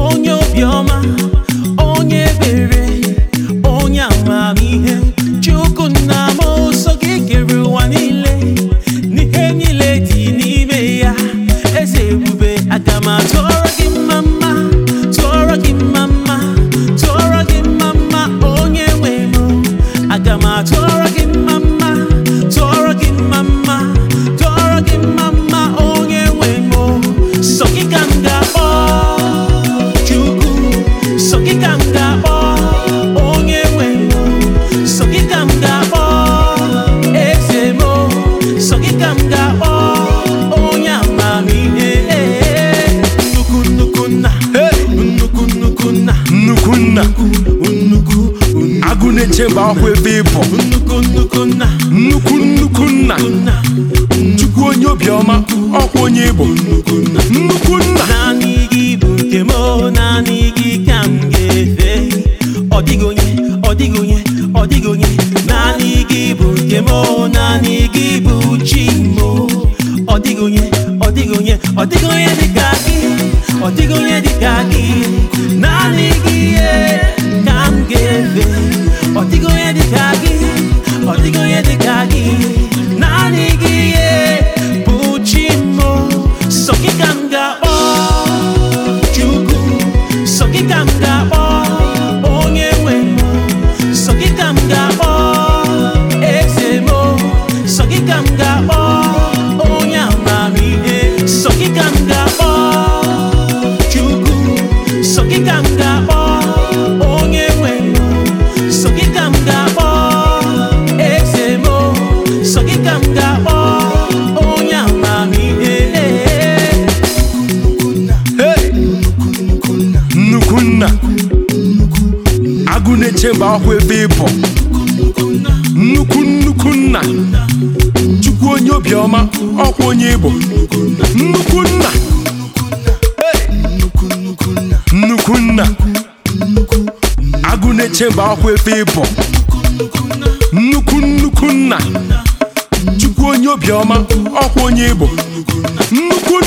onye obiọma m ga-akpọ onye nnukwu nnukwu nna na ebe nnukwu nnukwu nna nnukwu nnukwu nna onye onye nnukwu nna naanị nke naanị gị naanị gị bụ nke m naanị gị bụ ọ dịghị onye dịka gị ọ dịghị onye dịka gị naanị gị ihe ka m ga-efe ọ dịghị onye dịka gị ọ dịghị onye dịka gị naanị gị ihe bụ chi m sọ ka m ga-akpọ Chukwu sọ ka m ga-akpọ onye nwe m sọ ka m ga-akpọ eze m sọ ka m ga-akpọ agụ na-eche mba akwụ ebe ịbọ nnukwu nnukwu nna chukwu onye obiọma ọkwa onye ịbọ nnukwu nna nnukwu nna agụ na-eche mba akwụ ebe ịbọ nnukwu nnukwu nna chukwu onye obiọma ọkwa onye ịbọ nnukwu